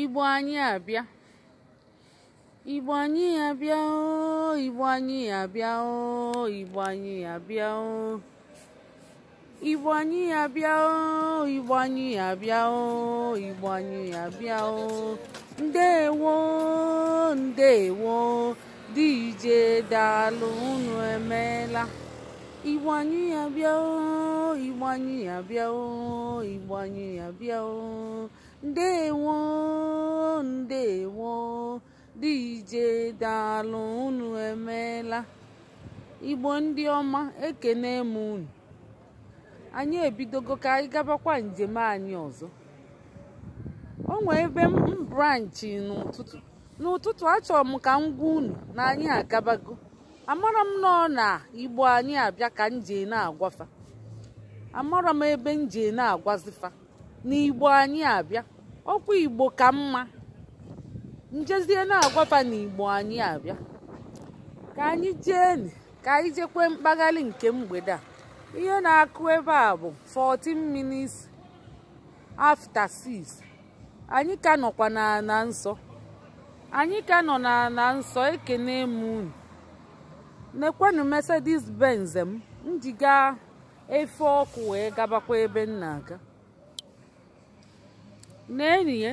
Igbo anyị abịa Igbo anyị abịa o Igbo anyị abịa o Igbo anyị abịa o Igbo anyị abịa o Igbo anyị abịa o Igbo anyị abịa o ndewo ndewo DJ daalụ unu emeela Igbo anyị abịa o Igbo anyị abịa o Igbo anyị abịa o ndewo ndewo dije dalụ unu emeela igbo ndị ọma ekene m unu anyị ebidogo ka anyị gabakwa njem anyị ọzọ o nwee ebe m branchi n'ụtụtụ n'ụtụtụ achọrọ m ka m gwa unu na anyị agabago amara m nọ na igbo anyị abịa ka nje na-agwafa amara m ebe nje na-agwazifa n'igbo anyị abịa ọkwa igbo ka mma njezie na-agwafa n'igbo anyị abịa ka anyị jee ka anyị jekwe nke mgbede a ihe na-akụ ebe a bụ 14 minutes after 6 anyị ka nọkwa n'ala nsọ anyị ka nọ nsọ ekene m unu nekwenụ Mercedes Benz m njiga efe ọkụ wee gabakwa ebe m na-aga na-enie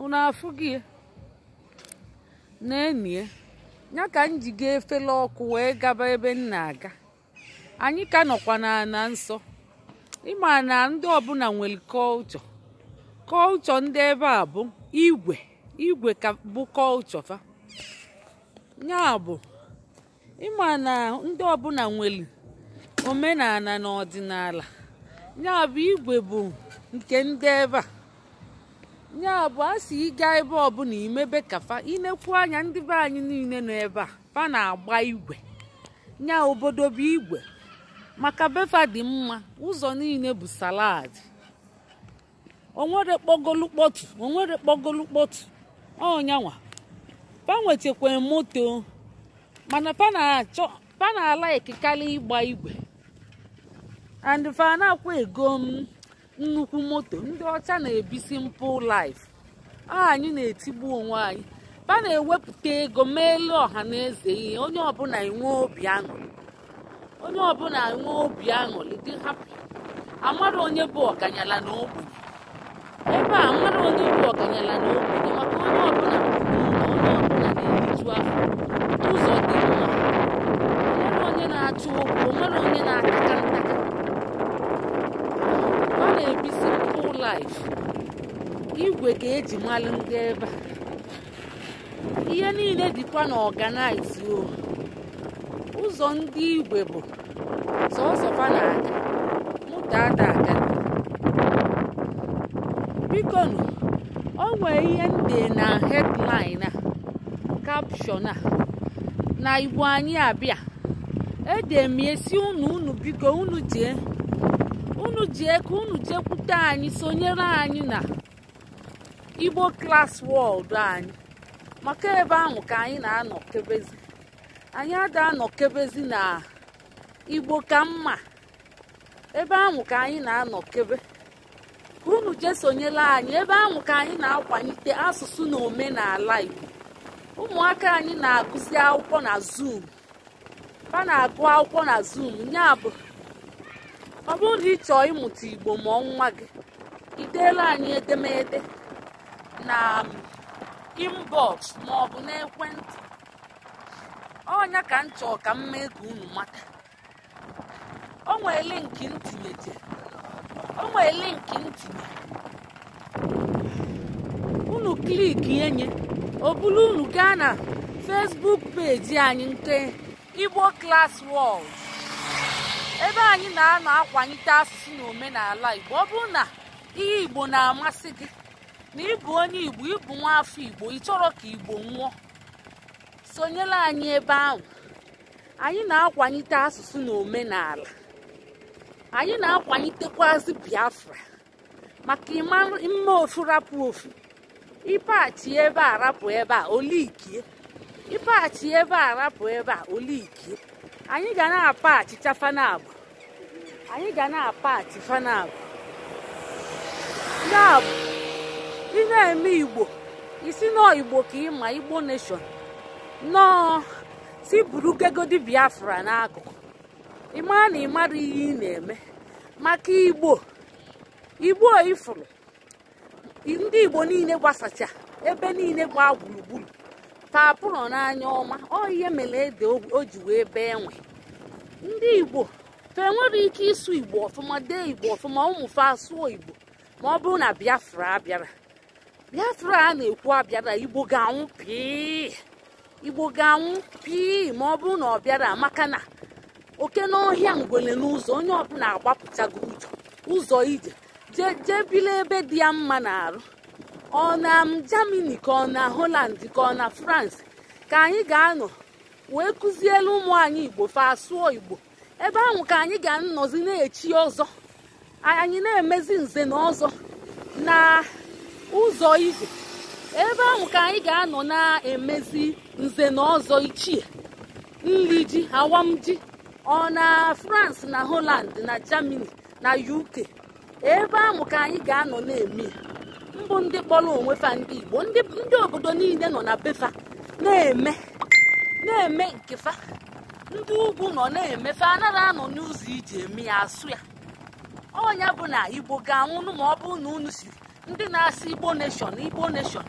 unu afụghị e? na-enie ya ka m ji ga efela ọkụ wee gaba ebe m na-aga anyị ka nọkwa na nsọ ịma na ndị ọbụla nwere kọlchọ kọlchọ ndị ebe a bụ igwe igwe ka bụ kọlchọ fa ya bụ ịma na ndị ọbụla nwere omenala na ọdịnala ya bụ igwe bụ nke ndị ebe a ya bụ a si ịga ebe ọbụla imebe kafa inekwu anya ndị be anyị niile nọ ebe a fa na-agba igwe nya obodo bụ igwe maka befa dị mma ụzọ niile bụ salad onwere kpọgolu kpọtụ onwere kpọgolu kpọtụ ọnyanwa fa nwetakwa moto mana fa na-achọ ịgba igwe and fa na ego m nnukwu moto ndị ọcha na-ebisi mpụ laif anyị na-etigbu onwe anyị ba na-ewepụta ego meelu ọha na eze ihe onye ọbụla enwe obi aṅụrị onye ọbụla enwe obi aṅụrị dị hapụ. amara onye bụ ọganyala na ogbenye ebe a amara onye bụ ọganyala na ogbenye maka onye ọbụla onye ọbụla na-eriju afọ ụzọ dị mma onye na achụ okwu onwere onye na-akaka a na-ebisi pụl laif igwe ga-eji malụ ndị ebe ihe niile dịkwa na ọganaiz o ụzọ ndị igwe bụ sọsọ na-aga dada aga bikonu ọ nwee ihe nde na hedlin a kapshọn na igbo anyị abịa ede unu unu biko unu jee unu ji eke unu jekwute anyị sonyere anyị na igbo klas wọld anyị maka ebe ahụ ka anyị na-anọkebezi anyị ada anọkebezi na igbo ka mma ebe ahụ ka anyị na-anọkebe ka unu jee sonyere anyị ebe ahụ ka anyị na akwanyite asụsụ na omenala igbo ụmụaka anyị na-agụzi akwụkwọ na zoom ha na-agụ akwụkwọ na zoom nya bụ ọ bụrụ na ị chọọ ịmụta igbo ma nwa gị ideela anyị edemede na um, inbox ma ọ bụ n'ekwentị ọnya ka m chọọ ka m mee ka unu mata o nwee linki ntinyeje o unu kliki enye ọ bụrụ unu gaa na Facebook peji anyị nke Igbo Class World ebe anyị na-anọ akwanyite asụsụ na omenala igbo ọ bụrụ na ihe igbo na-amasị gị na ịbụ onye igbo ịbụ nwa afọ igbo ị chọrọ ka igbo nwụọ sonyela anyị ebe ahụ anyị na-akwanyite asụsụ na omenala anyị na-akwanyitekwazị biafra maka mma ofu rapụ ofu ịpaghachi ebe a rapụ ebe a olikie ịpaghachi ebe a rapụ ebe a olikie anyị ga na-apa achịcha fanabụ anyị ga na-apa achị ị na-eme igbo isi nọọ igbo ka ị ma igbo nation nọọ si buru biafra n'akụkụ ị maa na ị mara ihe ị na-eme maka igbo igbo ifuru ndị igbo niile gbasacha ebe niile gbaa gburugburu taa nọ n'anya ọma ọ ihe mere ede o ji wee bee nwe ndị igbo fa enwere ike ịsụ igbo ọfụma dee igbo ọfụma ụmụfe asụọ igbo ma ọ bụrụ na biafra abịara biafra a na-ekwu abịara igbo ga-anwụ pii igbo ga-anwụ pii ma ọ bụrụ na ọ bịara maka na oke n'ọhịa ngwele n'ụzọ onye ọbụla agbapụtago ụzọ ije jee bili ebe dị ya mma na arụ ọ na Germany ka ọ na Holland ka ọ na France ka anyị ga-anọ wee kụzielu ụmụ anyị Igbo fa asụọ Igbo ebe ahụ ka anyị ga-anọzi na-echi ọzọ anyị na-emezi nze na ọzọ na ụzọ igwe ebe ahụ ka anyị ga-anọ na-emezi nze na ọzọ ichie nri ji awam ji ọ na France na Holland na Germany na UK ebe ahụ ka anyị ga-anọ na-eme mbụ ndị kpọrọ onwe fa ndị Igbo ndị obodo niile nọ na befa na-eme na-eme nke fa ndị ugwu nọ na-eme fa anaghị anọ n'ụzọ iji eme ya asụ ya ọnya bụ na Igbo ga-anwụnụ ma ọ bụrụ na unu siri ndị na-asị Igbo neshọn Igbo neshọn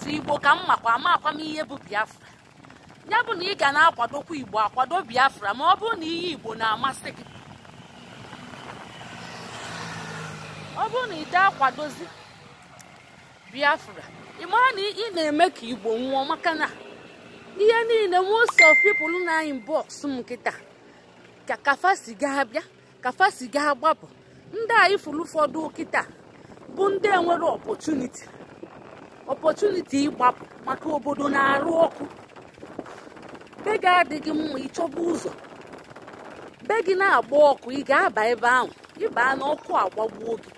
tụ Igbo ka m makwa ama akwamihe bụ Biafra ya bụ na ị ga na-akwadokwa Igbo akwado Biafra ma ọ bụ na ihe Igbo na-amasị gị ọ bụrụ na ị akwadozi biafra ịmara na ị na-eme ka igbo nwụọ maka na ihe niile most of people na anyị bọks m nkịta ka kafa si gaa bịa kafa si gaa gbapụ ndị a ifuru ụfọdụ kịta bụ ndị enwere ọpọtuniti ọpọtuniti ịgbapụ maka obodo na-arụ ọkụ be gị adịghị mma ịchọba ụzọ be gị na-agba ọkụ ị ga-aba ebe ahụ ịbaa n'ọkụ agbagbuo gị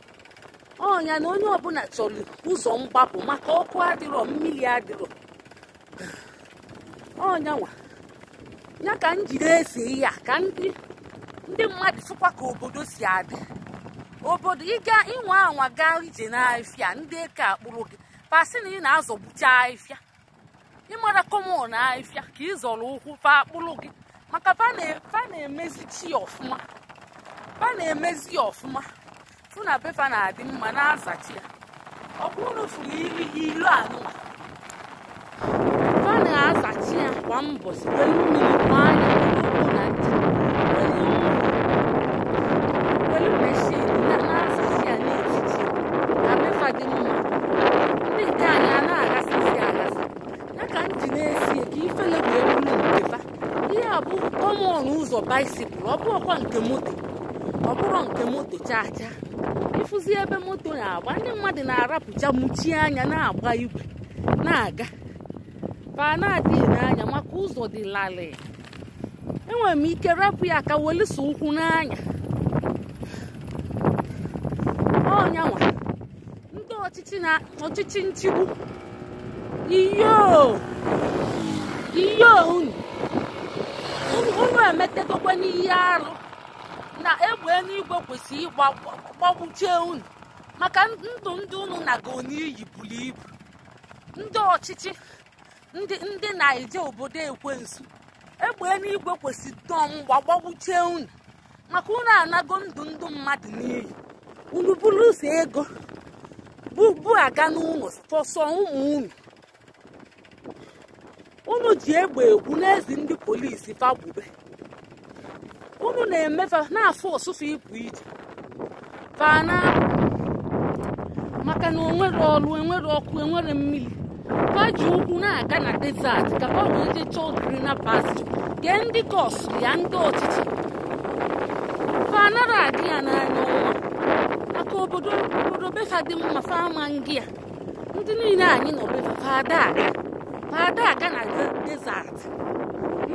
onya na onye ọbụla chọrọ ụzọ mgbapụ maka ọkụ adịrọ mmiri adịrọ ọnya ya ka njide jiri ihe ya ka ndị ndị mmadụ ka obodo si adị obodo ịga ịnwa anwa gaa ije n'ahịfịa ndị eke akpụrụ gị si na ị na-azọgbucha ahịfịa ịmara na ahịfịa ka ị zọrọ ụkwụ fa akpụrụ gị maka fa na-emezi chi ọfụma fa na-emezi ya ọfụma fụ na pepa na-adị mma na-azachi ya ọ bụrụ na fụrụ ilu anụwa fa na-azachi ya kwa mbọsi were mmiri gbaa anya n'ụkwụ na ncha were meshin na na-azachi ya n'etiti na pepa dị mma ndị nke anyị a na-aghasị isi aghasị ya ka m ji na-esi ka ifele wee bụrụ nke ihe a bụ kọmọn ụzọ baisikụl ọ bụrụkwa nke moto ọ bụrụ nke moto chaa chaa ịfụzi ebe moto na-agba ndị mmadụ na-arapụcha mụchie anya na-agba igwe na-aga pa na-adịghị n'anya maka ụzọ dị larịị enwere m ike rapụ ya ka welụso ụkwụ n'anya ọnyanwa ndị ọchịchị na ọchịchị nchigbu iyo unu unu n'ihe arụ na egbe eluigwe kwesịrị ịgbagbuchie unu maka ndụ ndị unu na n'iyi buru ibu ndị ọchịchị ndị na-eje obodo ekwensu egbe eluigwe kwesịrị dọọ mgba unu maka unu anago ndụ ndụ mmadụ n'iyi unu ụzọ ego bubu aga n'ụlọ ọsọ ụmụ unu unu ji egbe egwu n'ezi ndị polisi fagbube unu na-emefa na-afụ ụsụfụ ịpụ ije fana maka na onwere ọrụ enwere ọkụ enwere mmiri paji ukwu na-aga na desert ka ọ wee chọọ gee ndị kọsụ ya ndị ọchịchị fanara adị ya n'anya ụwa maka obodo obodo befa dị mma fama ngị ndị niile anyị nọ befa fada aga fada aga na desert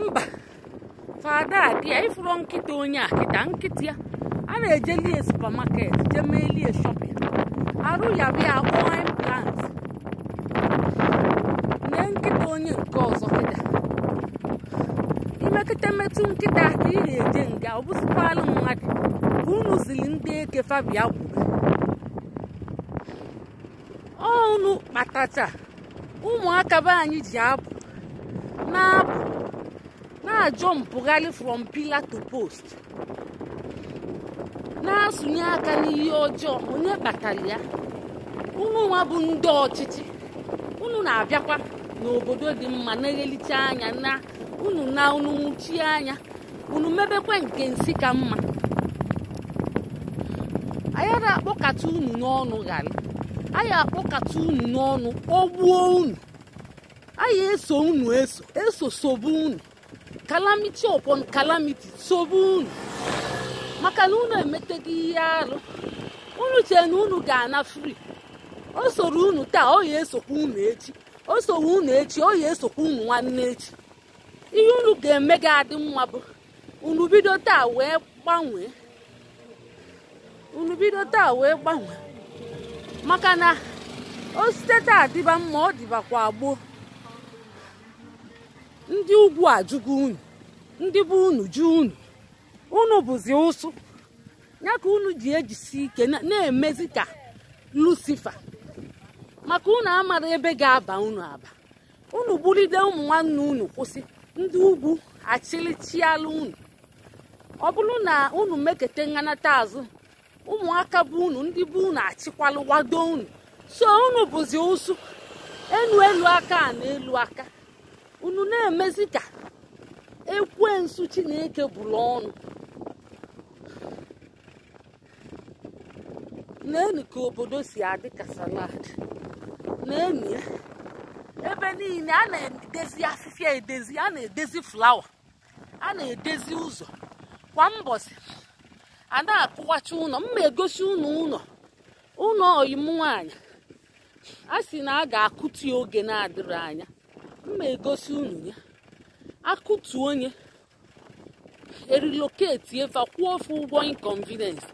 mba fada dị ya ịfụrụ nkịta onye a kịta nkịta ya a na-eje lie supamaket jee mee lie shọpin arụ ya bụ ya akpọọ implant nye nkịta onye nke ọzọ kịta imekịta metụ nkịta ka ị na-eje nga ọ bụzikwalụ mmadụ bụ unu zili ndị eke fabia gwuru ọnụ kpatacha ụmụaka be anyị ji abụ na-abụ na-ajompụgharị from pillar to post na-asụnye aka n'ihe ọjọọ onye kpatara ya unu nwa bụ ndị ọchịchị unu na-abịakwa n'obodo dị mma na-eghelite anya na unu na unu nwụchie anya unu mebekwa nke nsị ka mma anyị na-akpọkata unu n'ọnụ ghara anyị akpọkata unu n'ọnụ ogbuo unu anyị eso unu eso eso unu calamity upon calamity sobu unu maka na unu emeteghi ihe arụ unu chee na unu ga-ana fri o soro unu taa oyi esokwa unu echi o soro unu echi oyi esokwa unu nwanne echi ihe unu ga-eme gị adị mma bụ unu bido taa wee gbanwee unu bido taa wee gbanwee maka na o site taa dịba mma ọ dịbakwa gboo ndị ugwu ajụgo unu ndị bụ unu ju unu unu bụzi ụsụ ya ka unu ji ejisi ike na-emezi ka lucifer maka unu amara ebe ga-aba unu aba unu bulide ụmụ nwanne unu kwụsị ndị ugwu achịlịchialụ unu ọ bụrụ na unu mekete nganata azụ ụmụaka bụ unu ndị bụ unu achịkwalụ wado unu so unu bụzi ụsụ enu elu aka na elu aka unu na-emezi ka ekwensu chineke bụrụ ọnụ naenu ka obodo si adị ka salad nenu ebe niile a na-edezi afịfịa edezi a na-edezi flawa a na-edezi ụzọ kwa mbọsị a na-akụwacha ụlọ mma egosi ụnụ ụlọ ụlọ oyim nwaanyị, a sị na a ga-akụti oge na-adịrị anya mma egosi unu ya akụtu onye eriloketi eva kwụọ ofe ụgwọ inconvenience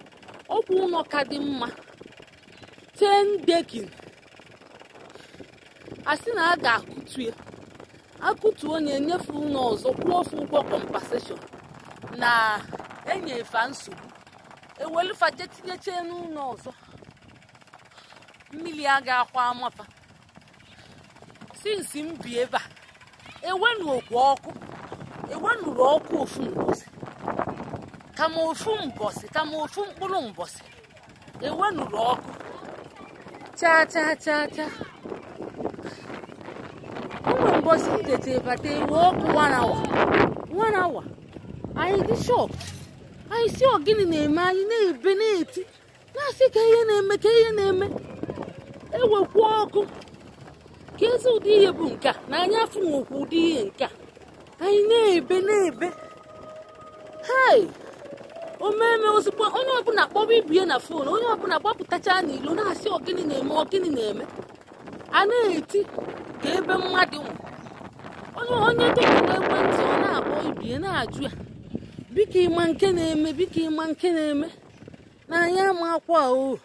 ọkwụ ụlọ ka dị mma ten dekin asị na a ga-akụtu ya akụtu onye nyefe ụlọ ọzọ kwụọ ofe ụgwọ compensation na enyefa nsogbu ewelufaje tinyeche n'ụlọ ọzọ mmiri aga akwa amafa sinsi m bi ebe a okwu ọkụ ewenụrụ ọkụ ofu mbọsị kama ofu mbọsị kama ofu mkpụrụ mbọsị ewenụrụ ọkụ chaa chaa chaa chaa Ụmụ mbọsị tete bata ewe ọkụ warawa warawa anyị dị shọp anyị si ọgịnị na-eme anyị na-ebe na-eti na-asị ka ihe na-eme ka ihe na-eme ewekwa ọkụ ka ezi ụdị ihe bụ nke a na anya afọ nwekwa ụdị ihe nke a anyị na-ebe na-ebe hei omeme ozugbo onye ọbụla kpọrọ ibie na fon onye ọbụla gbapụtachaa n'ilo na-asị ọgịnị na-eme ọgịnị na-eme a na-eti ka ebe mmadụ onye onye dọkịta ekwentị ọ na-akpọ ibie na-ajụ ya biko ịma nke na-eme biko ịma nke na-eme na anya ama akwa o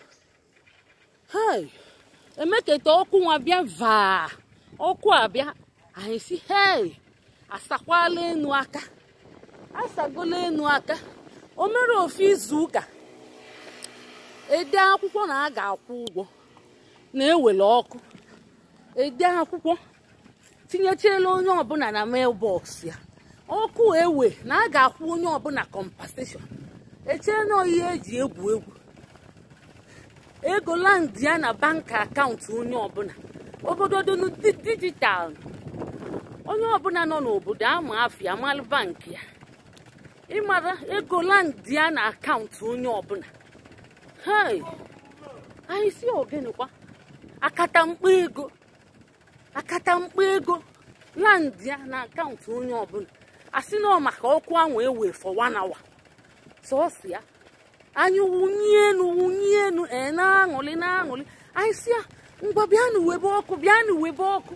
emeketa ọkụ nwa bịa vaa ọkụ abịa anyị si hei asakwala enu aka asagola enu aka o mere ofe izu ụka ede akwụkwọ na a ga-akwụ ụgwọ na-ewere ọkụ ede akwụkwọ tinyechela onye ọbụla na mailbox ya ọkụ ewe na a ga-akwụ onye ọbụla compensation echee na ihe eji egwu egwu ego landị ya na bank akaụntụ onye ọbụla obodo dị dijitalụ onye ọbụla nọ n'obodo ama afịa amalụ bankị ya ịmara ego landị ya na akaụntụ onye ọbụla hei anyị si ogenekwa akatamkpa ego akatamkpa ego landị ya na akaụntụ onye ọbụla asị nọ maka ọkụ ahụ ewe for one hour sọsọ ya anyị wụnye enu wụnye enu ee na-aṅụlị na-aṅụlị anyị si ya ah, ngwa bịanụ webe ọkụ bịanụ webe ọkụ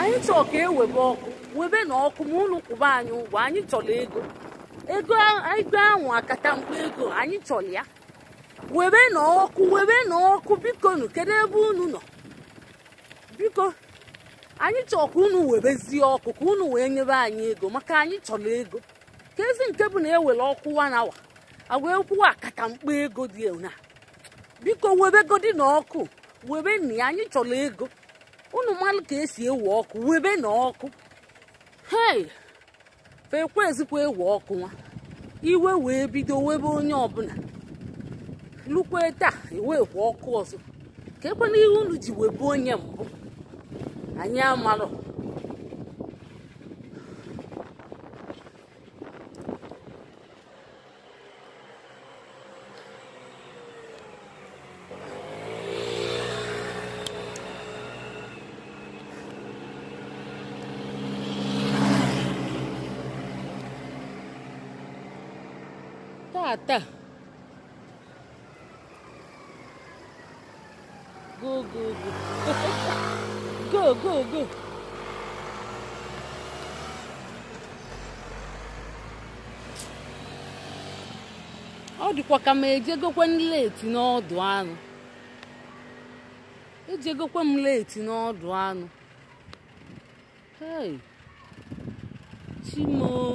anyị chọọ ka ewebe ọkụ webe na ọkụ ma ụlọ kwụba anyị ụgwọ anyị chọrọ ego ego ego ahụ akata mkpa ego anyị chọrọ ya webe na ọkụ webe na ọkụ biko nụ kedu ebe unu nọ biko anyị chọọ ka unu webezie ọkụ ka unu wee nyebe anyị ego maka anyị chọrọ ego ka ezi nke bụ na ewere ọkụ na awa agwa ekwu kata mkpa ego dị na biko webegodi na ọkụ webe na ya anyị chọrọ ego unu mmadụ ka esi ewe ọkụ webe na ọkụ hei fekwa ezikwa ewe ọkụ nwa iwe wee bido webe onye ọbụla lukwe taa ewekwa e ọkụ ọzọ ka ekwe ihe unu ji webe onye mbụ anyị amarọ Ata! go go go go go go ọ dịkwa ka m ejegokwe m leti n'ọdụ anụ egokwe m leti n'ọdụ anụ Hei! Chimoo!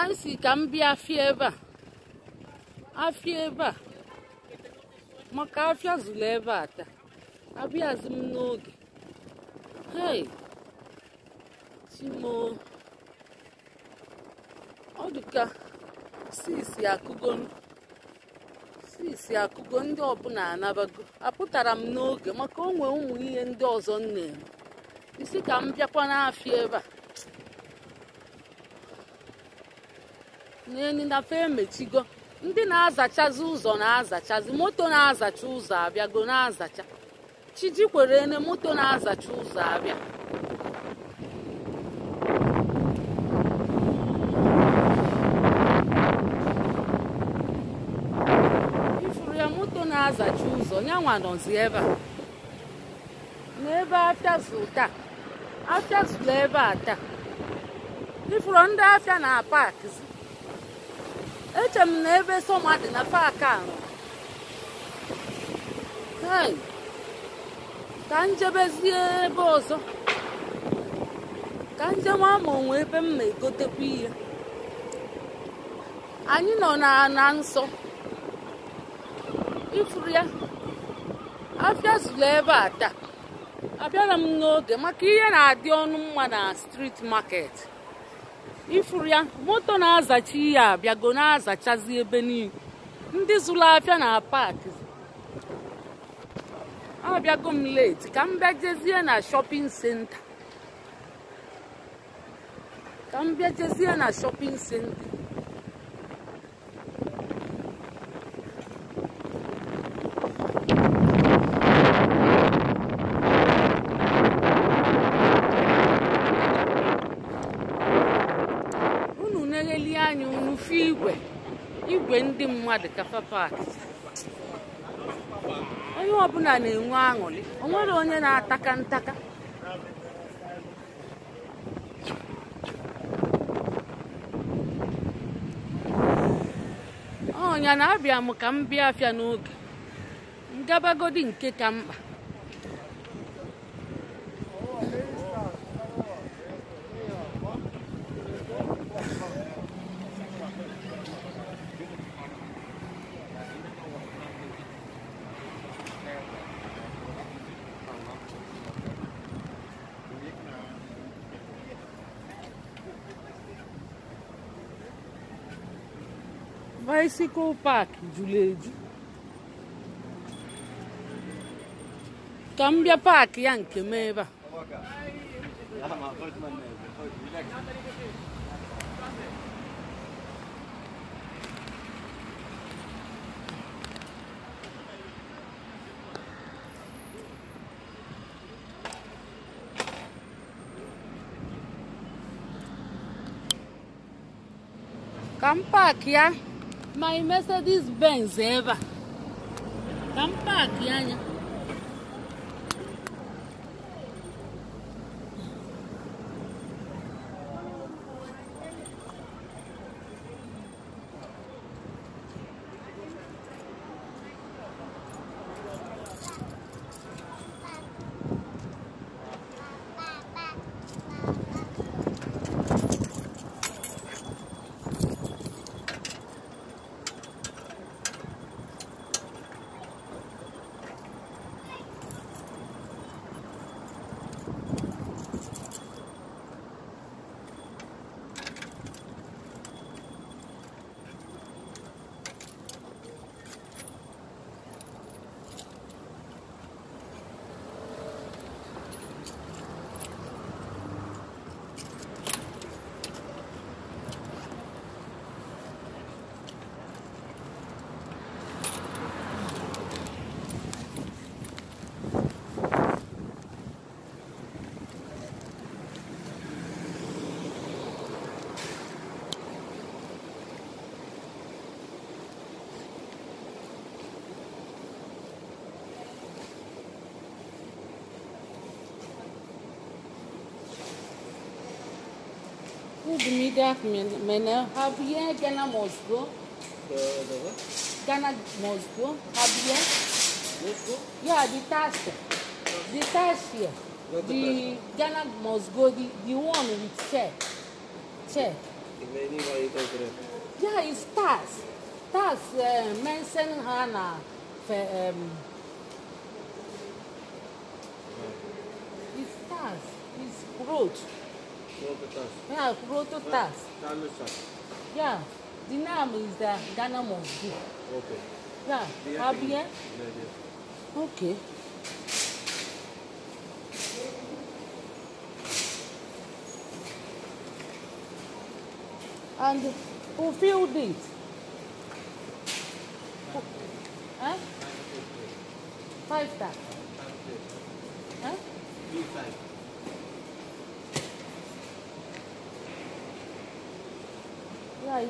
ka ka m bịa afịa ebe a afịa ebe a maka afịa zụrụ ebe a taa abịazi m n'oge hei chimo ọ dịka sisi akụgo sisi akụgo ndị ọbụla anabago apụtara m n'oge maka onwe ụmụ ihe ndị ọzọ m isi ka m bịakwa n'afịa ebe a na fe emechigo ndị na-azachazi ụzọ na-azachazi moto na-azacha ụzọ abịa go na-azacha chiji kwere ne moto na-azacha ụzọ abịa ifuru ya moto na-azacha ụzọ nyanwa nọzi ebe a n'ebe afịazụ taa afịazụla ebe a taa ifuru ndị afịa na paakịzi eche m na ebe sọma dị na paaki a ka njebezie ebe ọzọ ka njem ama onwe ebe m na-egotekwa ihe anyị nọ na nsọ ifuru ya afịa zuru ebe a taa abịara m n'oge maka ihe na-adị ọnụ mma na street maket. ifuru ya moto na-azacha ihe abịago na-azachazi ebe niile ndị zụrụ afịa na paakị abịago m leti ka m na shopping center. ka m na mmadụ kafe paaki onye ọbụla na-enwe aṅụrị o nwere onye na-ataka ntaka ọnya na-abịa m ka m bịa afịa n'oge ngabagodi nke ka mkpa Vai se o pack, Cambia pack anche me va. Come back, yeah? my mercedes benz ever ngamfaki yanya food media manager, Javier eh? Ghana Mosco. Ghana Mosco, Javier. Mosco? Yeah, the task. The task here. The Ghana Mosco, the, the one with chair. Chair. Yeah, it's task. Task uh, eh, mention Hana. Um, mm. it's task. It's growth. Yeah, proto tax. Yeah, the name is the uh, Ghana must Okay. Yeah, Okay. And who filled it? Huh? Five tax.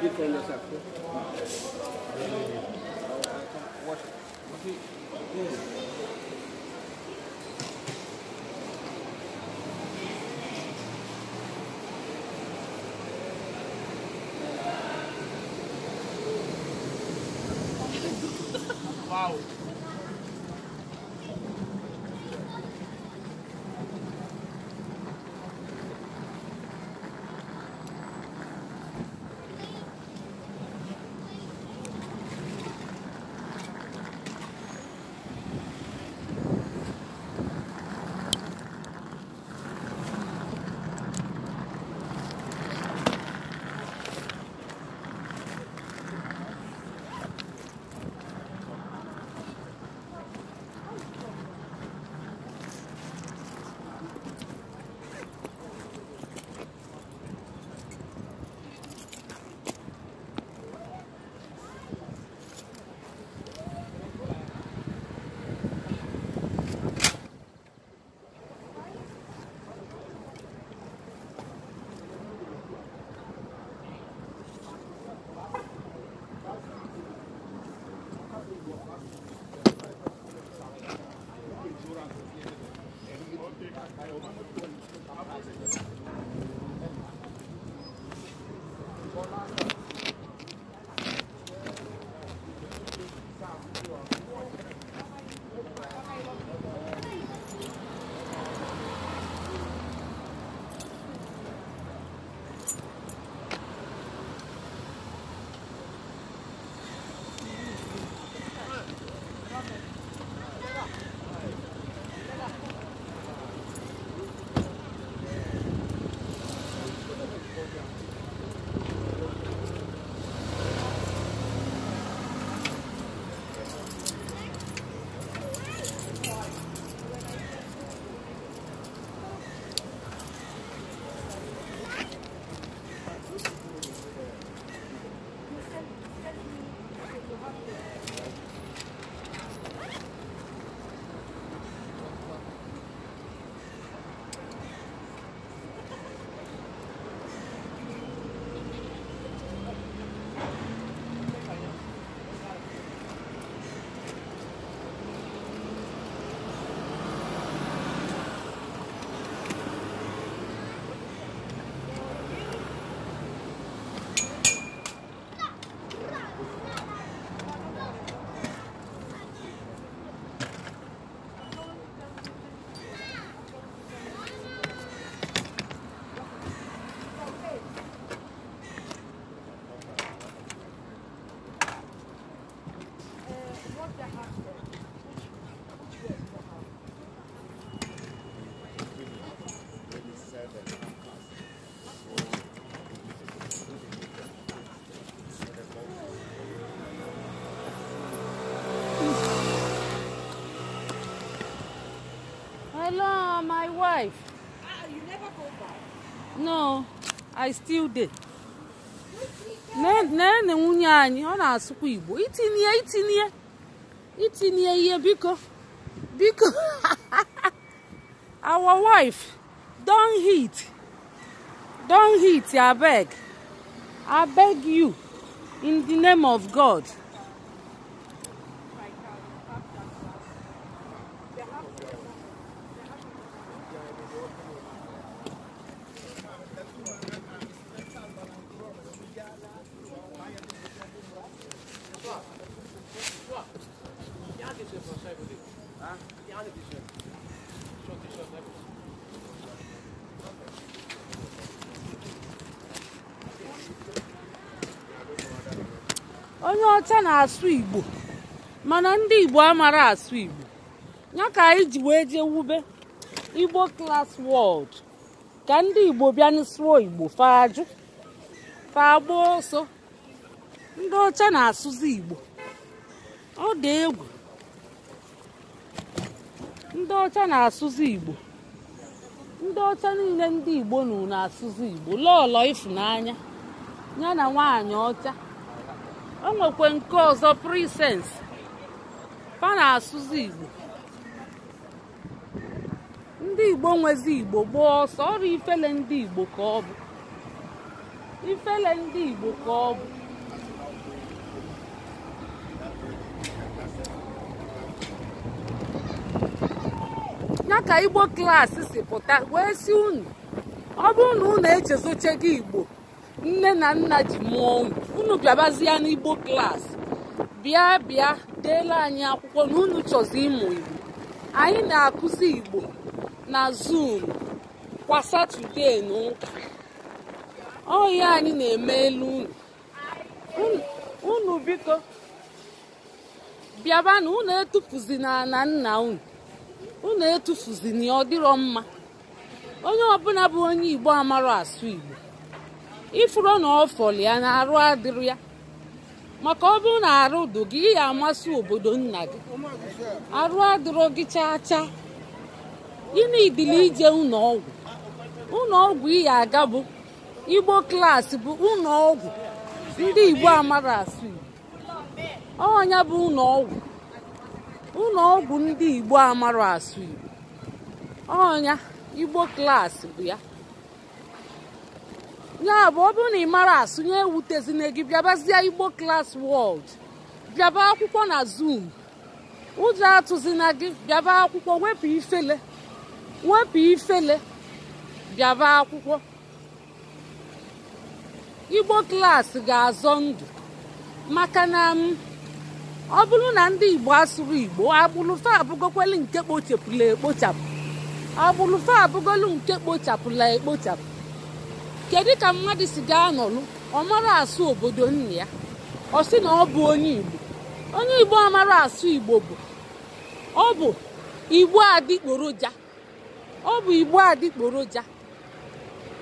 different as after. Wash it. wife ah you never go back no i still dey Ne nwunye anyị ọ na-asụkwa igbo itinye itinye itinye ihe biko biko our wife don hit don hit abeg abeg you in the name of god asụ igbo mana ndị igbo amara asụ igbo ya ka anyị ji wee jee wube igbo klas wọld ka ndị igbo bịa n'sụọ igbo fajụ fagba ọsọ ndị ọcha na-asụzi igbo ọ dị egwu ndị ọcha na-asụzi igbo ndị ọcha niile ndị igbo nụ na-asụzi igbo lọlọ ịfụnanya ya na nwaanyị ọcha o nwekwe nke ọzọ prisens fa na-asụzi igbo ndị igbo nwezi igbo gboo ọsọ ọrụ ifele ndị igbo ka ọ bụ ifele ndị igbo ka ọ bụ ya ka igbo klaasị si pụta wee si unu ọ bụrụ na unu echezochego igbo nne na nna ji mụọ unu unu bịabazie n'igbo klaasị bịa bịa deela anyị akwụkwọ na unu chọzi ịmụ igbo anyị na-akụzi igbo na zoom kwa satọde na ụka ọhịa anyị na-eme elu unu unu biko bịabanụ unu etufuzina na nna unu unu na ọ dịrọ mma onye ọbụla bụ onye igbo amara asụ igbo ifuru na ọfọli ya na arụ adịrị ya maka ọ bụrụ na arụ dụ gị ya amasị obodo nna gị arụ adịrọ gị chaa chaa ịna idili ije ụlọ ọgwụ ụlọ ọgwụ iya aga bụ igbo klaasị bụ ụlọ ndị igbo amara asụ igbo ọnya bụ ụlọ ọgwụ ndị igbo amara asụ igbo ọnya igbo klaasị bụ ya ya bụ ọ bụrụ na ị mara asụnye ewutezina gị bịabazie igbo klas wọld bịaba akwụkwọ na zoom ụjọ atụzina gị bịaba akwụkwọ wepụ ifele wepụ ifele bịaba akwụkwọ igbo klaasị ga-azọ ndụ maka na ọ bụrụ na ndị igbo asụrụ igbo agbụlụfe abụgokwelu nke kpochapụla ekpochapụ agbụlụfe abụgolu nke kpochapụla ekpochapụ kedu ka mmadụ si gaa anọlụ ọ mara asụ obodo nna ya ọ sị na ọ bụ onye igbo onye igbo amara asụ igbo bụ ọ bụ igbo adịgboroja ọ bụ igbo adịkporoja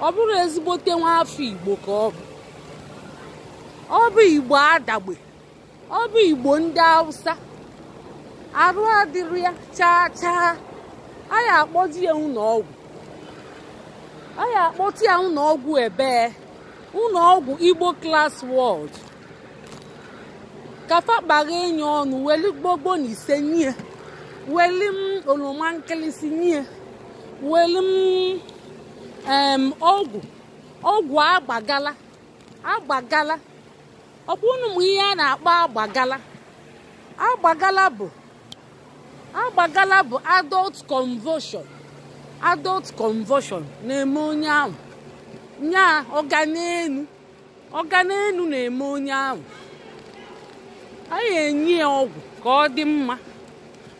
ọ bụrụ ezigbote nwa afọ igbo ka ọ bụ ọ bụ igbo adagbe ọ bụ igbo ndị hausa arụ adịrị ya chaa chaa a ya akpọji ya ụlọ ọgwụ a ya akpọtụ ya ụlọọgwụ ebee ụlọọgwụ igbo klas wọd kafa kpagha enyi ọnụ weli gbogbo na ise nye weli m oloma nkịlịsị nye weli m ọgwụ ọgwụ agbagala agbagala ọ bụ m ihe a na-akpọ agbagala agbagala bụ agbagala bụ adult convulsion adult convulsion na-eme onye ahụ nya ọganenu ọganenu na-eme onye ahụ anyị enye ya ọgwụ ka ọ dị mma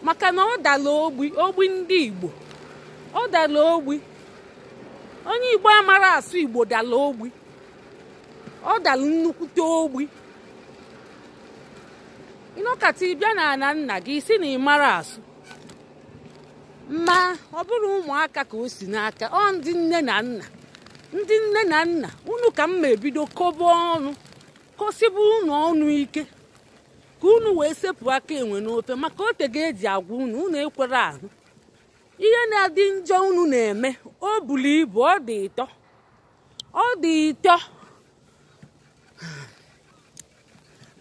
maka na ọ dala ogbi ogbi ndị igbo ọ dala ogbi onye igbo amara asụ igbo dala ogbi ọ dala nnukwute ogbi ịnọkata ịbịa na ana nna gị isi na ị mara asụ ma ọ bụrụ ụmụaka ka o si n'aka ọ ndị nne na nna ndị nne na nna unu ka mma ebido kobe ọnụ kosibe unu ọnụ ike ka unu wee sepụ aka enwe n'ofe maka ote ga-eji agwa unu unu ekwere ahụ ihe na-adị njọ unu na-eme o bulu ibu ọ dị ịtọ ọ dị ịtọ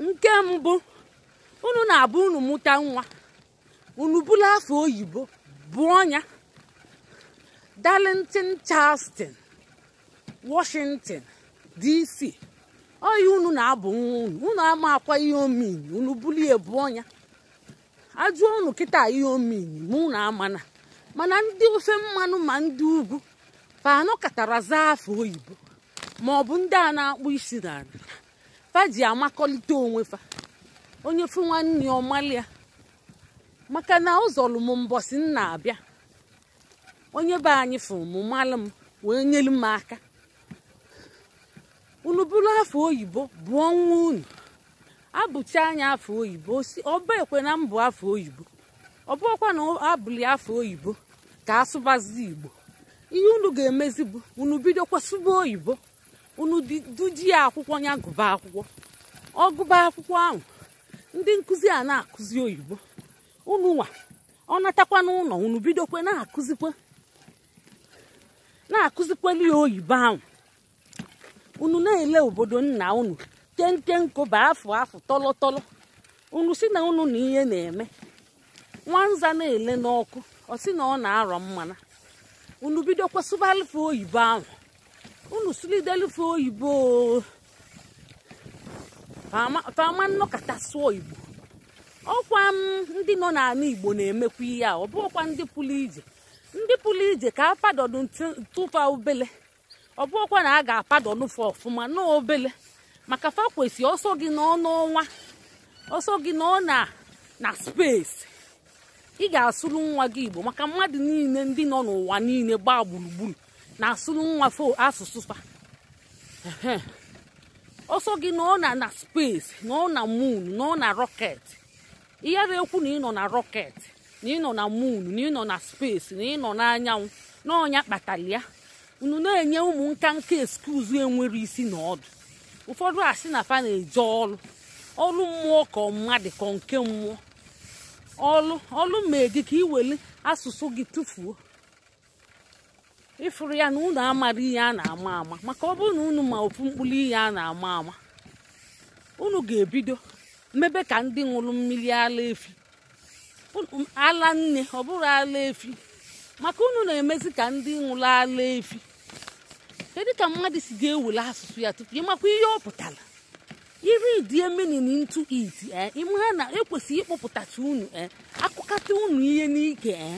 nke mbụ unu na-abụ unu mụta nwa unu bụla afọ oyibo Buonya, Darlington, Charleston, Washington, DC. yi unu na-abụ nwa unu unu ama akwa ihe omini unu bulie ọnya ajụọ unu kịta ihe omini ma unu amana mana ndị ofe mmanụ ma ndị ugwu fanụ katara zaa afọ oyibo ma ọ bụ ndị a na-akpụ isi na fa ji amakọlite onwe fa onye fụ nwanne ya ọmalịa maka na ụzọlụ m mbọsị m na-abịa onye be anyị fụrụ m malụ m wee nyelu m aka unu bụrụ afọ oyibo bụọ nwa unu abụcha anya afọ oyibo ọba ekwe na mbụ afọ oyibo ọkwa na abụli afọ oyibo ka asụbazi igbo ihe unu ga-emezi bụ unu bidokwa sụba oyibo unu dujie akwụkwọ ya gụba akwụkwọ ọ gụba akwụkwọ ahụ ndị nkụzi a na-akụzi oyibo unu nwa ọ natakwa n'ụlọ unu bidokwe na-akụzikwa na-akụzikwelu ya oyibo ahụ unu na-ele obodo nna unu kenkenko bụ afọ afọ tọlọtọlọ unu si na unu na ihe na-eme nwanza na-ele n'ọkụ ọ si na ọ na-arọ mmana unu bidokwa sụbalụfe oyibo ahụ unu sụlidelụfe oyibo fama nnọkọta sụọ igbo ọkwa ndị nọ n'ala igbo na-emekwa ihe a ọ ọkwa ndị pụrụ ije ndị pụrụ ije ka apadodu tụfa obele ọ bụ ọkwa na a ga-apadonu fa ọfụma n'obele maka fa kwesị ọsọ gị nọ n'ọnwa ọsọ gị nọ na na spesi ị ga-asụrụ nwa gị igbo maka mmadụ niile ndị nọ n'ụwa niile gbaa gburugburu na-asụrụ nwa fo asụsụ fa ọsọ gị nọ na na spesi nọ na moon nọ na rọketi ihe na-ekwu na nọ na rọket na nọ na moon na nọ na space na nọ n'anyanwụ na ọnya kpatara ya unu na-enye ụmụ nka nka eskuzu enwere isi na ọdụ ụfọdụ asị na fa na-eje ọlụ ọlụ mmụọ ka mmadụ ka nke mmụọ ọlụ ọlụ mee gị ka iwere asụsụ gị tụfuo ịfụrụ ya na unu amara ihe a na-ama ama maka ọ bụrụ na unu ma ofu mkpụrụ ihe a na-ama ama unu ga-ebido mebe ka ndị ṅụrụ mmiri ala efi ala nne ọ bụrụ ala efi maka unu na-emezi ka ndị ṅụrụ ala efi kedu ka mmadụ si ga-ewere asụsụ ya tupu ịmakwa ihe ọ pụtara iri die menin ntu it e, ịmara na ekwesịghị ịkpọpụtacha unu e, akụkata unu ihe n'ike e,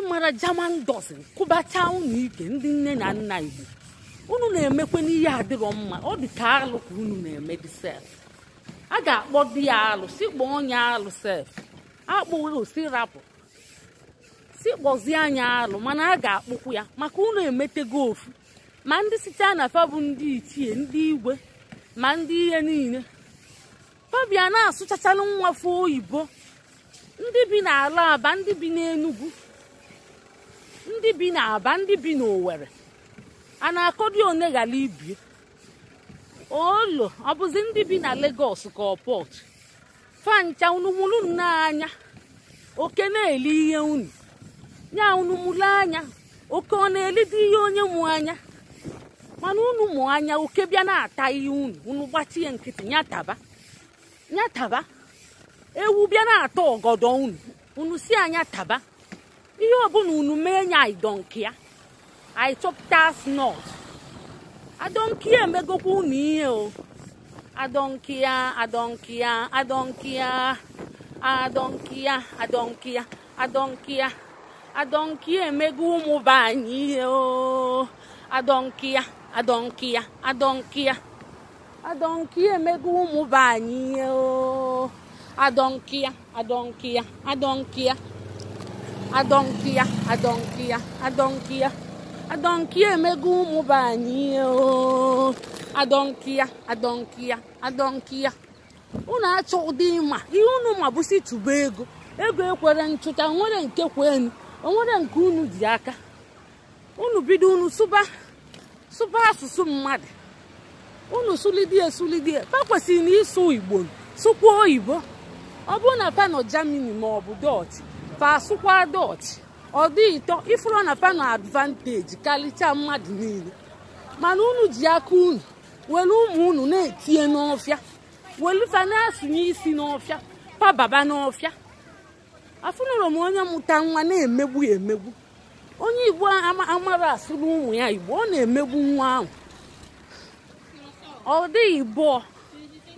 ịmara jaman dọsin kụbacha unu ike ndị nne na nna igbo unu na-emekwa n'ihe adịrọ mma ọ dị ka alụ ka unu na-eme dị sef a ga-akpọ di ya alụsị kpọọ onye alụsị akpụsị rapụ si kpọzie anya alụ mana a ga-akpụkwu ya maka unu emetego ofu ma ndị site na fa bụ ndị ichie ndị igwe ma ndị ihe niile fabia na-asụchachalụ nwafọ oyibo ndị bi n'ala aba ndị bi n'enugwu ndị bi n'aba ndị bi n'owere a na-akọdi one ghara ibie olu ọ bụzi ndị bi na Lagos ka ọ fancha unu mụrụ oke na-eli ihe unu nya unu anya oke ọ na-elide ihe onye mụ anya mana unu anya oke bịa na-ata ihe unu unu gbachie nkịtị nyataba nyataba ewu bịa na-ata ọgọdọ unu unu si anya taba ihe ọbụla unu mee nya idọ nke ya chọpụta adonkia megokwu na ihe o adonkia adonkia adonkia adonkia adonkia adonkia adonkia emego ụmụ be anyị ihe o adonkia adonkia adonkia adonkia emego ụmụ be anyị ihe o adonkia adonkia adonkia adonkia adonkia adonkia adọnki emego ụmụ be anyị adọnki ya adọnki ya unu achọ ụdị ịma ihe unu ma bụsi tụba ego ego ekwere nchụta nwere nke kwenu onwere nke unu ji aka unu bido unu sụba sụba asụsụ mmadụ unu sụlidie sụlidie pa kwesịrị na ịsụ igbo sụkwa oyibo ọ bụrụ na pa nọ jamini ma ọ bụ sụkwa dọch ọ dị ịtọ ifuru na fa na advanteji mmadụ niile mana unu ji aka unu were ụmụ unu na-etinye n'ọfịa were fa na asụnye isi n'ọfịa pababa n'ọfịa afụnụrụ m onye mụta nwa na-emegbu emegbu onye igbo amara asụrụ ụmụ ya igbo ọ na-emegbu nwa ahụ ọ dịghị bụọ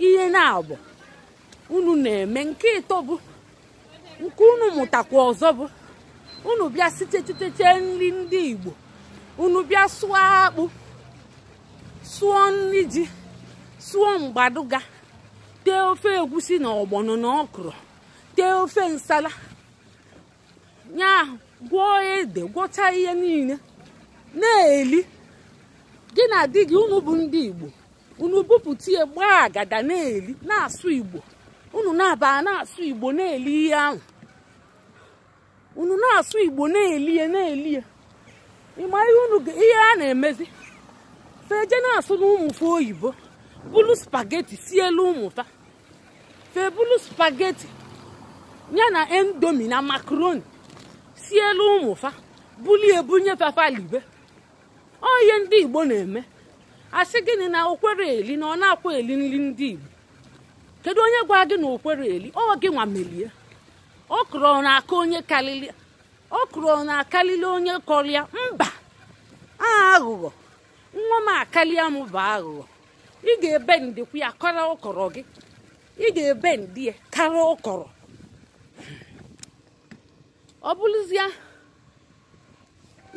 ihe na-abụ unu na-eme nke ịtọ bụ nke unu mụtakwa ọzọ bụ unu bịa sitechiteche nri ndị igbo unu bịa sụọ akpụ sụọ nri ji sụọ mgbaduga tee ofe egwusi na ọgbọnọ na ọkụrụ tee ofe nsala nya gwọọ ede gwọcha ihe niile na-eli gị na di gị unu bụ ndị igbo unu bupụta ya gbaa agada na-eli na-asụ igbo unu na-aba na-asụ igbo na-eli ihe ahụ unu na-asụ igbo na-elie na-elie ịma ihe unu ihe a na-emezi feje na-asụ na oyibo bulu spageti sielu ụmụta febulu spageti ya na endomi na makaroni sielu ụmụfa bulie ebunye fafalibe ọ ihe ndị igbo na-eme asị gịnị na okwere eli na ọ na-akwa eli nri ndị igbo kedu onye gwa gị na okwere eli ọ gị nwa melie okro na-aka onye okro na-akarịrị onye kọrịa mba aghụghọ nwa m akarịa m bụ aghụghọ ị ga-ebe ndekwu ya kọrọ ụkọrọ gị ị ga-ebe ndị ya kara ụkọrọ ọ bụrụzie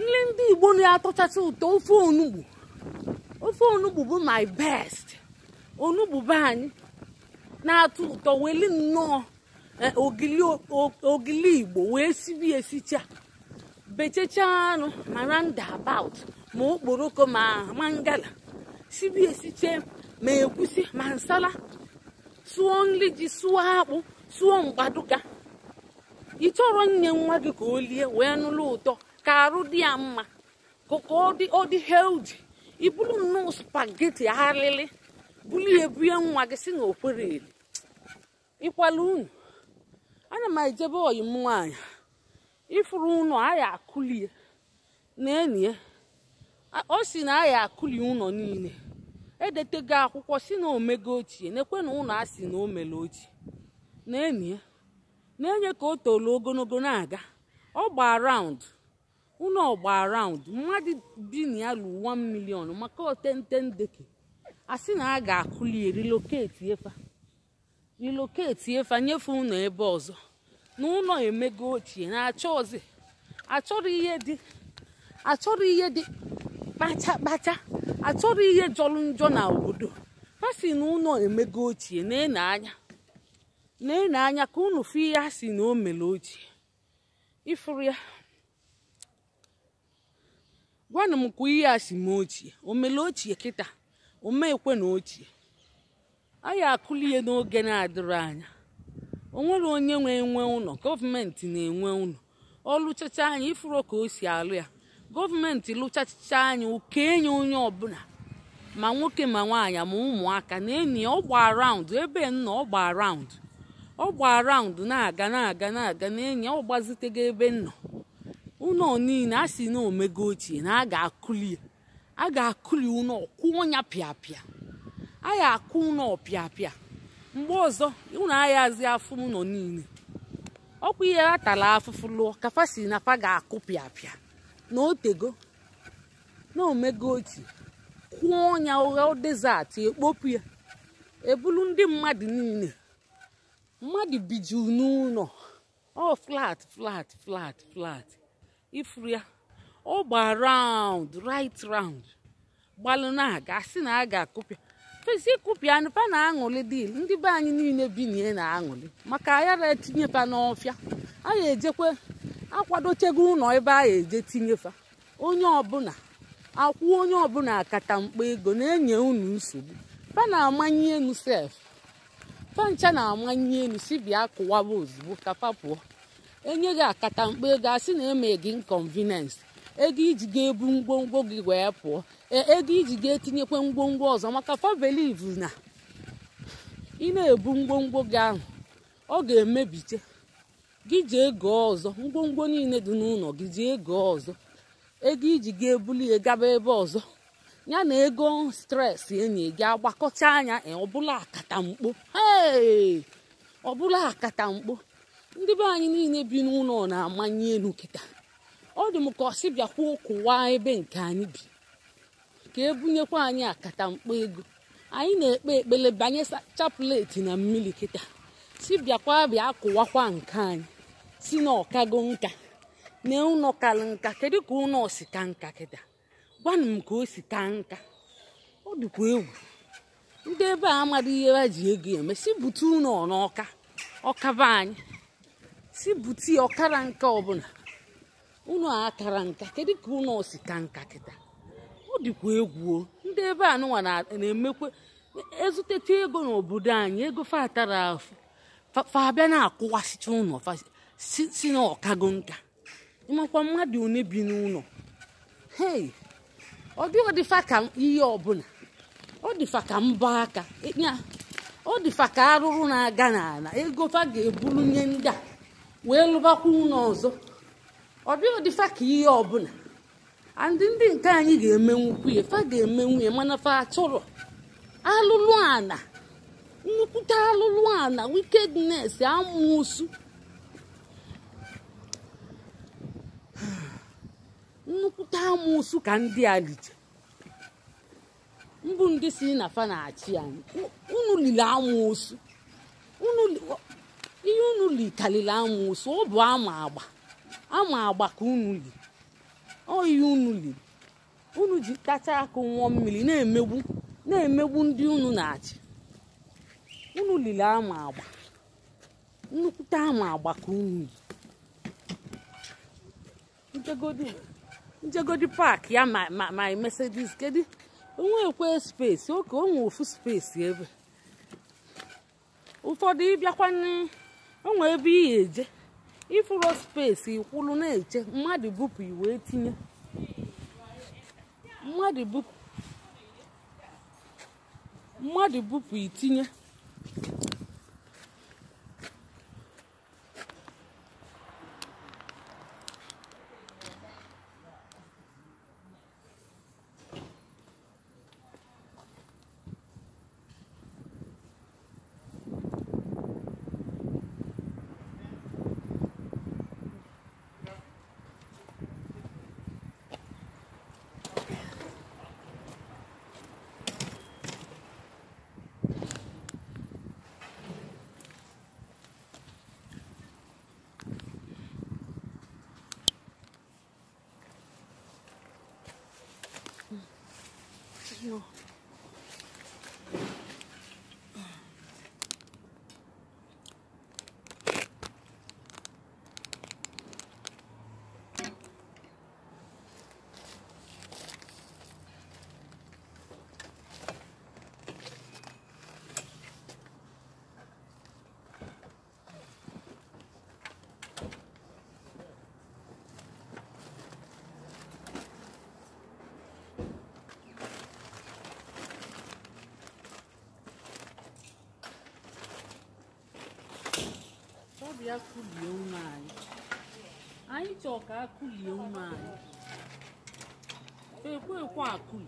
nle ndị igbo na-atọchacha ụtọ ofe onugbu ofe onugbu bụ my best onugbu be anyị na-atọ ụtọ weli nnọọ Eh, ogili igbo wee sibi esicha bechacha anụ mara abaut ma okporoko ma mangala sibi esiche ma egwusi ma nsala sụọ nri ji suo akpụ sụọ mgbaduka ị chọrọ nye nwa gị ka o lie wee nụlụ ụtọ ka arụ dị ya mma ka ọ dị heldi ibulu nnọọ spageti arịrị bulu ebunye nwa gị si na okwere eli ịkwala unu ana m ejebe oyi m nwaanyị ifuru ụlọ aya akụlie na-enye o si na aya akụli ụlọ niile edetego akwụkwọ si na omego ochie nekwe na ụlọ a si na o mere ochie na-enye na-enye ka o toro ogologo na-aga ọ gbaa raụndụ ụlọ ọgba raụndụ mmadụ bi na ya lu 1 million maka otente ndeke a sị na a ga-akụli relocate efa relocate efe anyefe ụnọ ebe ọzọ na ụlọ emego ochie na achọzi achọrọ ihe dị achọrọ ihe dị kpacha kpacha achọrọ ihe jọrọ njọ na obodo asị na ụlọ emego ochie na-ene anya na-ene anya ka ụlọ fụ ihe a sị na o mere ochie ifuru ya gwanu m kwa ihe a si m ochie omele ochie kịta o meekwe na ochie anyị akụli n'oge na-adịrị anya onwere onye nwe enwe ụlọ gọọmenti na-enwe ụlọ ọ lụchacha anyị ifuro ka o si alụ ya gọọmenti lụchacha anyị ụka enye onye ọbụla ma nwoke ma nwaanyị ma ụmụaka na enyi ya ọ raụndụ ebe nna ọ raụndụ ọ raụndụ na-aga na-aga na-aga na enyi ya ọ gbazitego ebe nnọ ụlọ niile a si na omego ochie na a ga-akụli a ga-akụli ụlọ kwụọ ya pịapịa anyị akụ ụnọ ọpịapịa mgbe ọzọ ụnọ anyị azị afụ ụlọ niile ọkwa ihe a tara afụfụ lụọ kafa na fa ga-akụ pịapịa na otego na omego otu kwụọ ọnya ụgha dezatị ekpopu ya eburu ndị mmadụ niile mmadụ biju n'ụlọ ọ flat flat flat flat ifuru ya ọ gba round right round gbalụ na-aga na a ga-akụpịa ezi ịkụpịanụ pa na-aṅụlị dil ndị be anyị niile bi na-aṅụlị maka ayara etinye pa n'ọfịa aya ejekwe akwadochego ụlọ ebe aya eje tinyefa onye ọbụla akwụ onye ọbụla akata mkpa ego na-enye unu nsogbu fa na-amanye enu sef fancha na-amanye enu si bịa kụwaba ozugbo ka pụọ enye gị akata mkpa ego a sị na eme gị ego iji ga-ebu ngwongwo gị wee pụọ e, ego iji ga-etinyekwa ngwongwo ọzọ maka fabeliv na ị na-ebu ngwongwo gị ahụ ọ ga-emebite gị ji ego ọzọ ngwongwo niile dị n'ụlọ gị ji ego ọzọ ego iji ga-ebuli gaba ebe ọzọ ya na ego stres enyi gị agbakọta anya ọbụla akatamkpo ọbụla akatamkpo ndị be anyị niile bi n'ụlọ na-amanye elu kịta ọ dị m ka ọ sị bịakwa ụkwụwa ebe nke anyị bi ka ebunyekwa anyị akata mkpa ego anyị na-ekpe ekpele banye chapụleti na mmiri kịta si bịakwa bịa kụwakwa nke anyị si na ọkago nka na ụnọ kalụ nka kedu ka ụnọ si ka nka kịta gwanụ m ka o si ka nka ọ dịkwa egwu ndị ebe a amaghị ihe ha ji ego eme si bute ụlọ n'ọka ọkaba anyị si bute ọkara nke ọbụla unu kara nka kedu ka unu osi ka nka kịta ọ dịkwa egwu ndị ebe a nụnwa na-emekwa ezuteta ego n'obodo anyị ego fatara afụ fabịa na-akụwasịcha ụlọ si na ọkago nka ịmakwa mmadụ one bi n'ụlọ hei ọ dịghị dịfa ka ihe ọbụla ọ dịfa ka mbọ aka ọ dịfa ka arụrụ na-aga n'ala ego fa ga nye ndị a wee lụbakwa ụlọ ọzọ ọ bịa ọdịfa ka ihe ọbụla andị ndị nke anyị ga-emenwukwu ya fa ga-emenwu ya mana fa atụrụ alụlụ ana nnukwute alụlụ ana wikednes amụsụ nnukwute amụsụ ka ndị a lije mbụ ndị si na fa na-achị anyị unu lili amụsụ ihe unu likarịrị amụsụ ọ bụ ama agba ama agba ka unu li oyi unu li unu ji tacha aka nwụọ mmiri na-emegbu na-emegbu ndị unu na-achị unu lili ama agba nnukwute ama agba ka unu li njegodi njegodi ya ma ma ma mercedes kedu onwekwe spesi oke onwe ofu spesi ebe ụfọdụ ịbịakwa onwe ebe ị ga-eje ifuru spesi ikwulu na-eche mmadụ bupụ iwe tinye mmadụ bupụ itinye kulie ụmụ anyị anyị chọọ ka akụlie ụmụ anyị ekwe ekwe akụli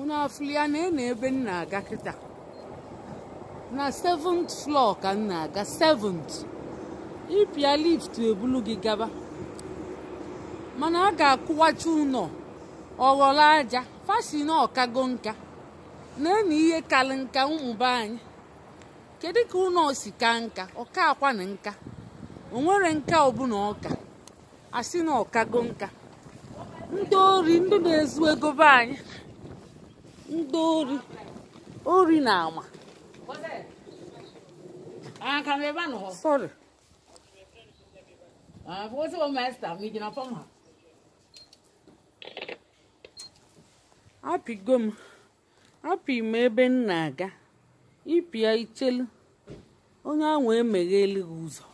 ụnụ afụli ya na ena ebe nna aga kịta na 7th floor ka nna aga 7th ịpịa lift ebulu gị gaba mana a ga-akụwacha ụlọ ọghọrọ aja fasi na ọkago nka na-enu ihe karị nka mmụba anyị kedu ka ụlọ si ka nka ọka akwa na nka onwere nka ọbụla ọka asị na ọkago nka ndị ori ndị na-ezu ego be anyị ndị ori ori na ama apịgo m apị m ebe m na-aga ịpịa ichelu onye ahụ emegheli gị ụzọ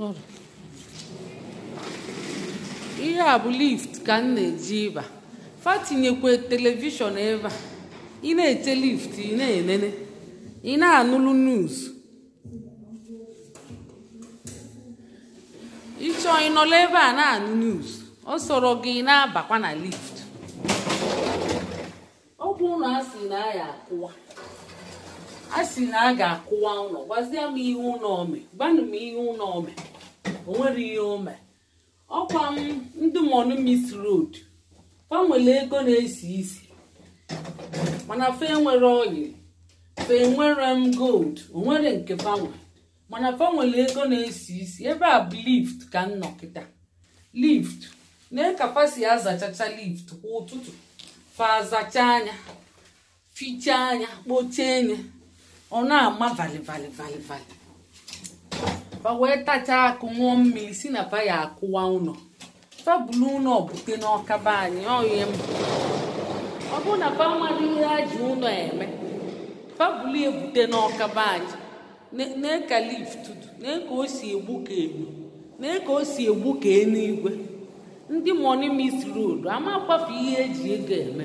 Ị ihe a bụ lift ka m na-eji ịba fatinyekwe telivishọn ebe ị na-eche lift ị na-enene ị na-anụlụ news ịchọ ịnọla ebe a na-anụ news ọ sọrọ gị na-abakwa na lift ọ bụ na asị na ya akụwa a sị na a ga-akụwa ụlọ gwazie m ihe ụlọ ome gwanụ m ihe ụlọ ome o nwere ihe ome ọkwa m ndị monumis road fa nwere ego na-esi isi mana fa enwere oyi fa enwere m gold o nwere nke fanwe mana fa nwere ego na-esi isi ebe a bụ lift ka m nọ kịta lift na kapasi azachacha lift kwa ụtụtụ fa azacha anya fichaa anya kpochie anya ọ na-ama valivalivalivali fa wee tachaa akụ ṅụọ mmiri si na fa ya akụwa ụlọ fabulu ụlọ bute n'ọkaba anyị ọhie m ọ bụrụ na fa mmadụ ihe a ji ụlọ eme fabulu ebute n'ọkaba anyị na-eka lift na-eka o si egbu ka egbu na-eka o si egbu ka eluigwe ndị mọni mis rod amakwafe ihe eji ego eme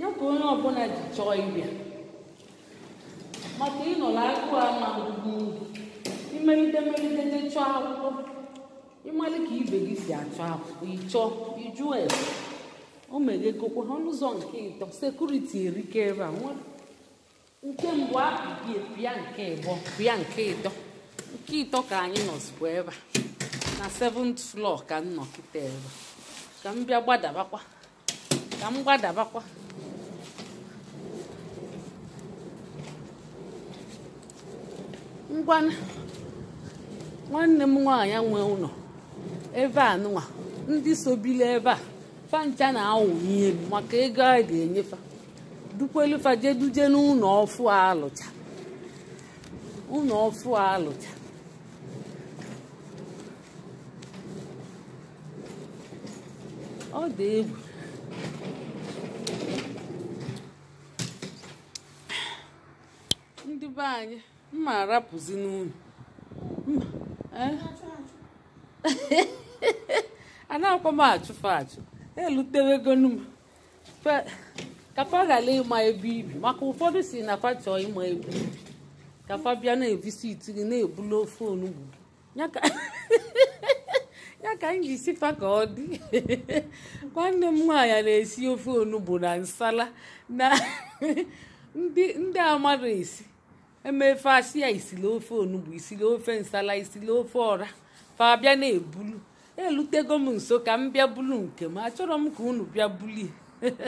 ya ka onye ọbụla ji chọọ ịbịa maka ịnọ na-akụ ama ugwu imelite melite je chọọ akwụkwọ ịmalị ka ibe gị si achọ akwụkwọ ịchọ ịjụ ese o megekokwa ọnụzọ nke ịtọ sekuriti erike ebe a nke e, nke ịbọ pịa nke ịtọ nke ịtọ ka anyị nọzikwa ebe na 7th ka m ebe ngwa nwanne m nwaanyị nwe ụlọ ebe a nụnwa ndị sobila ebe a fancha na-awụ ihe m maka ego a ga-enyefa dukwelufa jeduje n'ụlọ ọfụ alụcha ụlọ ọfụ alụcha ọ dị egwu ndị be anyị mma arapụzi n'unyu eh? anaghịkwa m achụfe achụ elutewegonu m kapa ghara ịma ebe ibi maka ụfọdụ si na fa chọọ ịma ebe ibi bịa na-evisiti gị na-ebulu ofe onugbu ya ka m ji sifa ka ọ dị nwanne m nwaanyị na-esi ofe onugbu na nsala na ndị amadụ esi emefe asị ya isili ofe onugbu isili ofe nsala isili ofe ọra fa bịa na-ebulu elutego m nso ka m bịa bulu nke m achọrọ m ka unu bịa bulie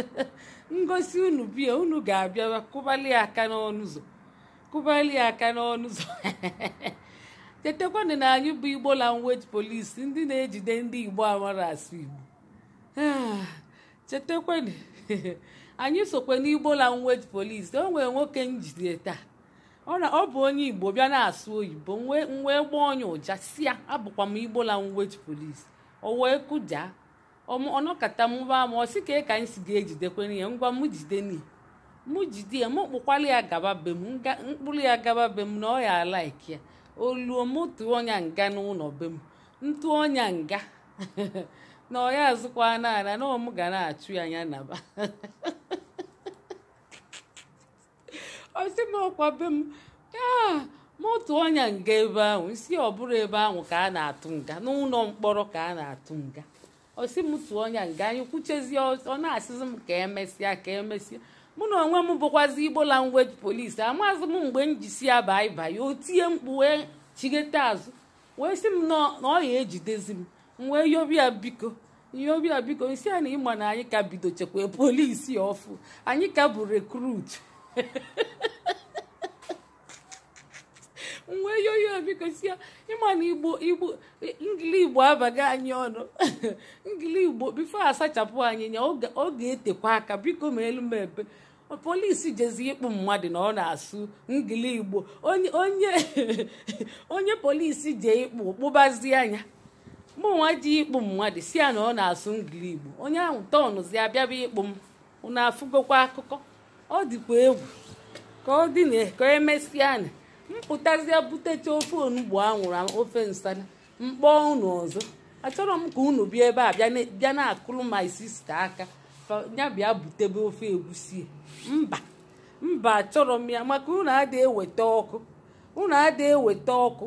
ngosi unu bie unu ga-abịa kụbali aka n'ọnụ ụzọ kụbali aka n'ọnụ ụzọ chetakwana na anyị bụ igbo language police ndị na-ejide ndị igbo amara asụ igbo ah, chetakwana anyị sokwa n'igbo language police o nwere nwoke njide taa ọ na ọ bụ onye igbo bịa na-asụ oyibo wee gbaa onye ụja si ya abụkwa m igbola la wet polis o wee kụja ọnọkata mụba m ọ sị ka ka anyị si ga-ejidekwana ya ngwa m jide n'ihi mụ jide ya m kpụkwala ya gaba be m mkpụrụ ya gaba be m na ọ ya alaiki ya oluo tụọ ọnya nga n'ụlọ be m ntụ ọnya nga na ọ ya azụkwa n'ala na ọ m ga na-achụ ya anya naba m ọkwa m aa ah, motu ọnya nga ebe ahụ si ọbụrụ ebe ahụ ka a na-atụ nga n'ụlọ mkpọrọ ka a na-atụ nga ọsị m tụọ ọnya nga anyị kwuchezie ọ na-asịzi m ka emesịa ka emesịa mụ na onwe m bụkwazi igbo language polisi amazi m mgbe m ji si ya baị mkpu wee chighete azụ wee si m na ọ ejidezi m wee yobia biko yobia biko isi a na ịma na anyị ka bido chekwa polisi ọfụ anyị ka bụ rekrut wee yoyo biko si ya ịma na igbo igbo ngili igbo abaghị anyị ọnụ ngili igbo bifo asachapụ anyị nya ọ ga-etekwa aka biko ma elu m polisi jezi ịkpụ mmadụ na ọ na-asụ ngili igbo onye onye polisi je ịkpụ kpụbazie anya mụnwa ji ịkpụ mmadụ si ya na ọ na-asụ ngili igbo onye ahụ tọnụzi abịaba ịkpụ m unu afụgokwa akụkọ ọ dịkwa egwu ka ọ dị na ka emesịa na mpụtazịa butecha ofe onugbu anwụrụ ofe nsala mkpọ unu ọzọ achọrọ m ka unu bịa ebe a bịa na-akụrụ ma sista aka ya bịa butebe ofe egwusi mba mba achọrọ m ya maka unu adịghị eweta ọkụ unu adịghị eweta ọkụ